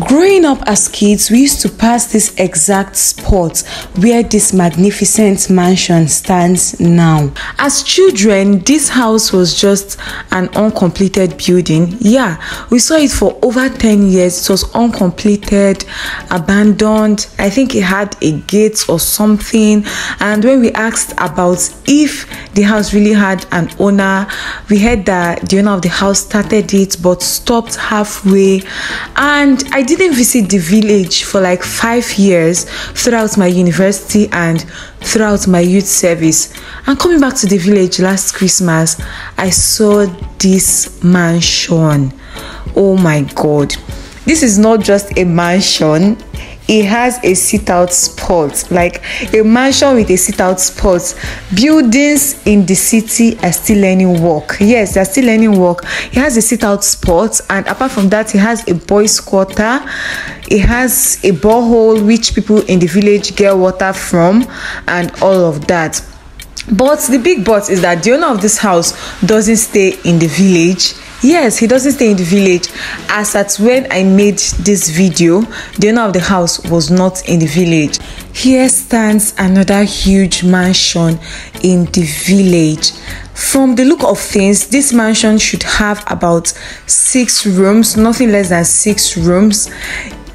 Growing up as kids, we used to pass this exact spot where this magnificent mansion stands now. As children, this house was just an uncompleted building. Yeah, we saw it for over 10 years. It was uncompleted, abandoned. I think it had a gate or something. And when we asked about if the house really had an owner, we heard that the owner of the house started it but stopped halfway. And I I didn't visit the village for like five years throughout my university and throughout my youth service. And coming back to the village last Christmas, I saw this mansion. Oh my god. This is not just a mansion, it has a sit out spot like a mansion with a sit out spot buildings in the city are still learning work yes they're still learning work it has a sit out spot and apart from that it has a boys quarter it has a borehole which people in the village get water from and all of that but the big but is that the owner of this house doesn't stay in the village yes he doesn't stay in the village as at when i made this video the owner of the house was not in the village here stands another huge mansion in the village from the look of things this mansion should have about six rooms nothing less than six rooms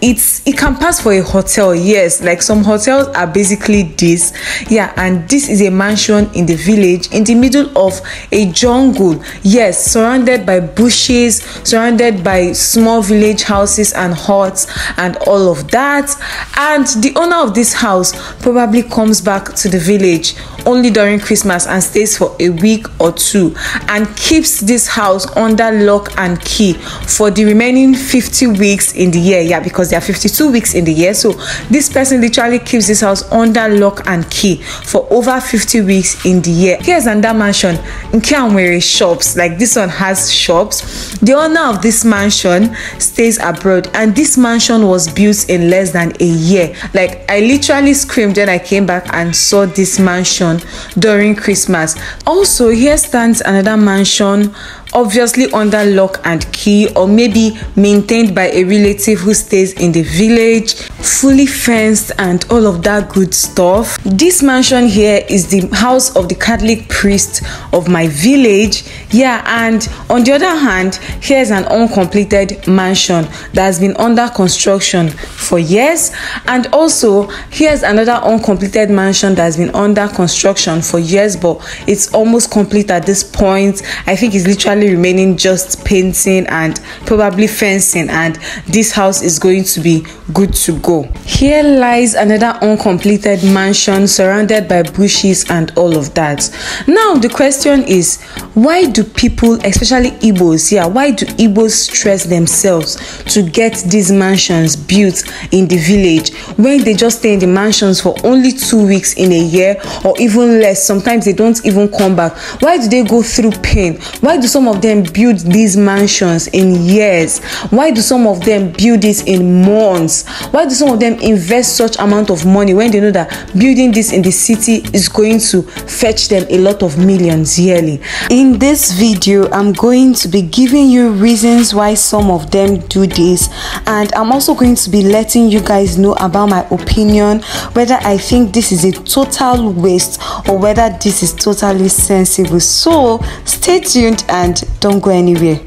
it's it can pass for a hotel yes like some hotels are basically this yeah and this is a mansion in the village in the middle of a jungle yes surrounded by bushes surrounded by small village houses and huts and all of that and the owner of this house probably comes back to the village only during christmas and stays for a week or two and keeps this house under lock and key for the remaining 50 weeks in the year yeah because there are 52 weeks in the year. So this person literally keeps this house under lock and key for over 50 weeks in the year. Here's another mansion in Kianwere shops. Like this one has shops. The owner of this mansion stays abroad and this mansion was built in less than a year. Like I literally screamed when I came back and saw this mansion during Christmas. Also, here stands another mansion obviously under lock and key or maybe maintained by a relative who stays in the village fully fenced and all of that good stuff. This mansion here is the house of the Catholic priest of my village. Yeah, and on the other hand, here's an uncompleted mansion that's been under construction for years. And also, here's another uncompleted mansion that's been under construction for years, but it's almost complete at this point. I think it's literally remaining just painting and probably fencing, and this house is going to be good to go go. Here lies another uncompleted mansion surrounded by bushes and all of that. Now the question is, why do people, especially Igbos yeah, why do Igbos stress themselves to get these mansions built in the village when they just stay in the mansions for only two weeks in a year or even less? Sometimes they don't even come back. Why do they go through pain? Why do some of them build these mansions in years? Why do some of them build it in months? Why do some of them invest such amount of money when they know that building this in the city is going to fetch them a lot of millions yearly in this video i'm going to be giving you reasons why some of them do this and i'm also going to be letting you guys know about my opinion whether i think this is a total waste or whether this is totally sensible so stay tuned and don't go anywhere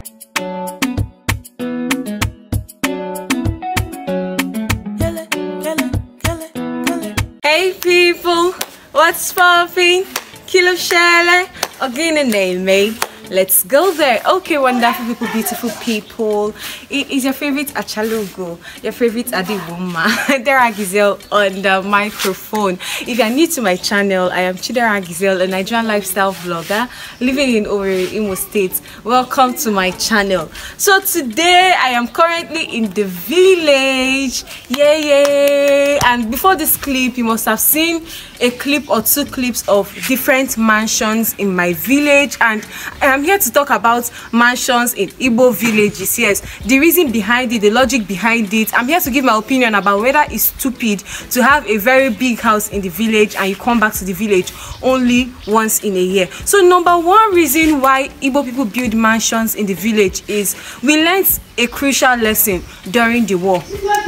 sparfing, kilo shelle, again gine nail mate let's go there okay wonderful people beautiful people it is your favorite achalugo your favorite adiwuma there are gazelle on the microphone if you are new to my channel i am chidera gazelle a nigerian lifestyle vlogger living in Owerri, Imo State. Welcome to my channel. So today I am currently in the village. Yay, yay! And before this clip, you must have seen a clip or two clips of different mansions in my village. And I I'm here to talk about mansions in Igbo villages. Yes, the reason behind it, the logic behind it. I'm here to give my opinion about whether it's stupid to have a very big house in the village and you come back to the village only once in a year. So number one reason why Igbo people build mansions in the village is we learned a crucial lesson during the war.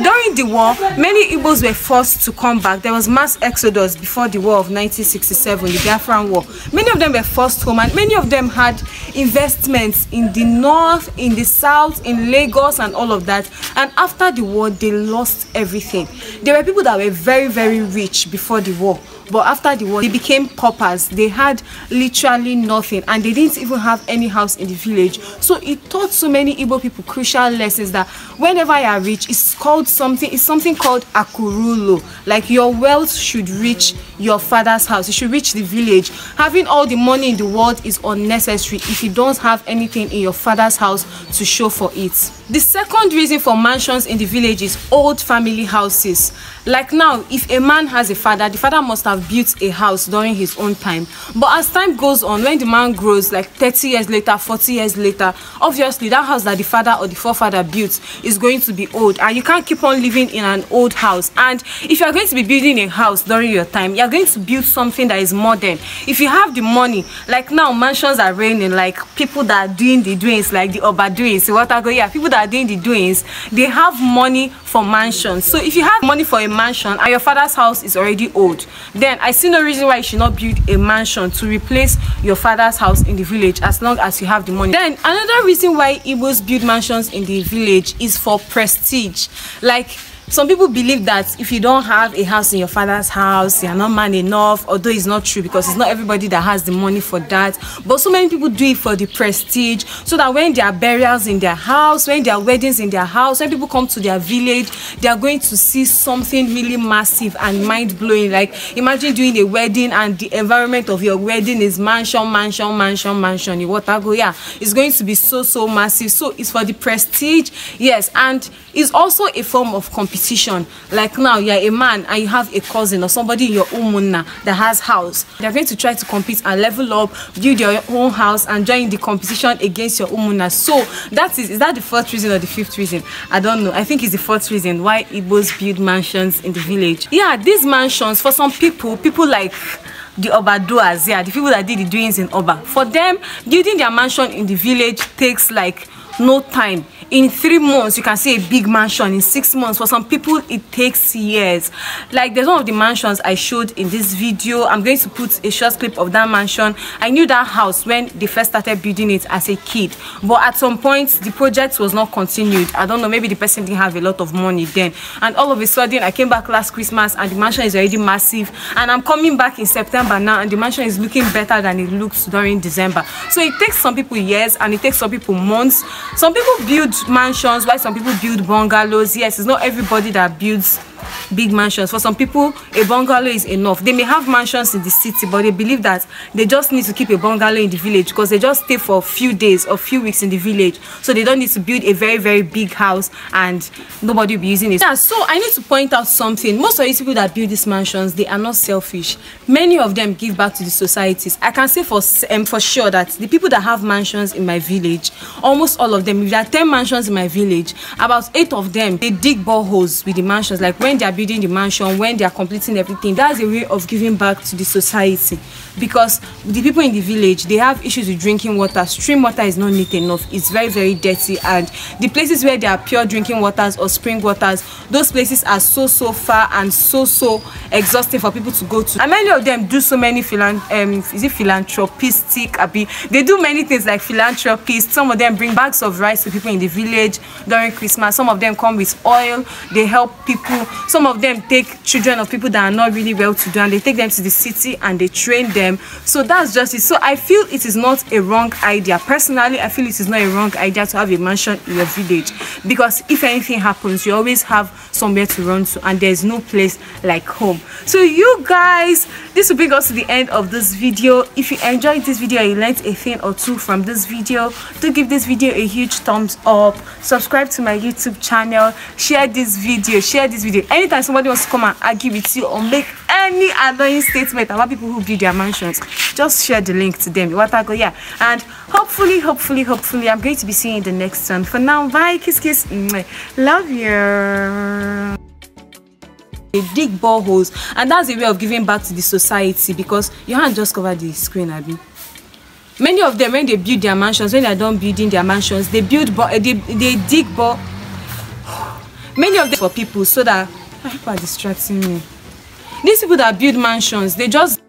During the war, many Igbos were forced to come back. There was mass exodus before the war of 1967, the Biafran War. Many of them were forced home and many of them had investments in the north, in the south, in Lagos, and all of that. And after the war, they lost everything. There were people that were very, very rich before the war. But after the war, they became paupers. They had literally nothing and they didn't even have any house in the village. So it taught so many Igbo people crucial lessons that whenever you are rich, it's called something, it's something called akurulo. Like your wealth should reach your father's house you should reach the village having all the money in the world is unnecessary if you don't have anything in your father's house to show for it the second reason for mansions in the village is old family houses like now if a man has a father the father must have built a house during his own time but as time goes on when the man grows like 30 years later 40 years later obviously that house that the father or the forefather built is going to be old and you can't keep on living in an old house and if you're going to be building a house during your time you're are going to build something that is modern if you have the money like now mansions are raining like people that are doing the doings like the oba doings what I go yeah people that are doing the doings they have money for mansions so if you have money for a mansion and your father's house is already old then i see no reason why you should not build a mansion to replace your father's house in the village as long as you have the money then another reason why igbos build mansions in the village is for prestige like some people believe that if you don't have a house in your father's house you're not man enough although it's not true because it's not everybody that has the money for that but so many people do it for the prestige so that when there are burials in their house when there are weddings in their house when people come to their village they are going to see something really massive and mind-blowing like imagine doing a wedding and the environment of your wedding is mansion mansion mansion mansion in watago yeah it's going to be so so massive so it's for the prestige yes and it's also a form of competition Like now, you're a man and you have a cousin or somebody in your umuna that has house. They're going to try to compete and level up, build your own house and join the competition against your umuna. So that is, is that the fourth reason or the fifth reason? I don't know. I think it's the fourth reason why Igbos build mansions in the village. Yeah, these mansions, for some people, people like the Oba doers, yeah, the people that did the doings in Oba. For them, building their mansion in the village takes like no time in three months you can see a big mansion in six months for some people it takes years like there's one of the mansions i showed in this video i'm going to put a short clip of that mansion i knew that house when they first started building it as a kid but at some point the project was not continued i don't know maybe the person didn't have a lot of money then and all of a sudden i came back last christmas and the mansion is already massive and i'm coming back in september now and the mansion is looking better than it looks during december so it takes some people years and it takes some people months some people build mansions while some people build bungalows yes it's not everybody that builds big mansions for some people a bungalow is enough they may have mansions in the city but they believe that they just need to keep a bungalow in the village because they just stay for a few days or few weeks in the village so they don't need to build a very very big house and nobody will be using it yeah so i need to point out something most of these people that build these mansions they are not selfish many of them give back to the societies i can say for um, for sure that the people that have mansions in my village almost all of them if there are 10 mansions in my village about eight of them they dig boreholes with the mansions like when when they are building the mansion when they are completing everything that's a way of giving back to the society because the people in the village they have issues with drinking water stream water is not neat enough it's very very dirty and the places where there are pure drinking waters or spring waters those places are so so far and so so exhausting for people to go to and many of them do so many philan um, is it philanthropistic abi they do many things like philanthropists some of them bring bags of rice to people in the village during christmas some of them come with oil they help people Some of them take children of people that are not really well to do and they take them to the city and they train them. So that's just it. So I feel it is not a wrong idea. Personally, I feel it is not a wrong idea to have a mansion in your village because if anything happens, you always have somewhere to run to and there's no place like home. So you guys, this will bring us to the end of this video. If you enjoyed this video, you learned a thing or two from this video, do give this video a huge thumbs up. Subscribe to my YouTube channel. Share this video. Share this video anytime somebody wants to come and argue with you or make any annoying statement about people who build their mansions, just share the link to them. go yeah. And hopefully, hopefully, hopefully, I'm going to be seeing you in the next one. For now, bye, kiss, kiss. Love you. They dig boreholes, and that's a way of giving back to the society because you have not just covered the screen, Abby. Many of them, when they build their mansions, when they are done building their mansions, they build, they, they dig boreholes. many of them for people so that ah, people are distracting me. These people that build mansions, they just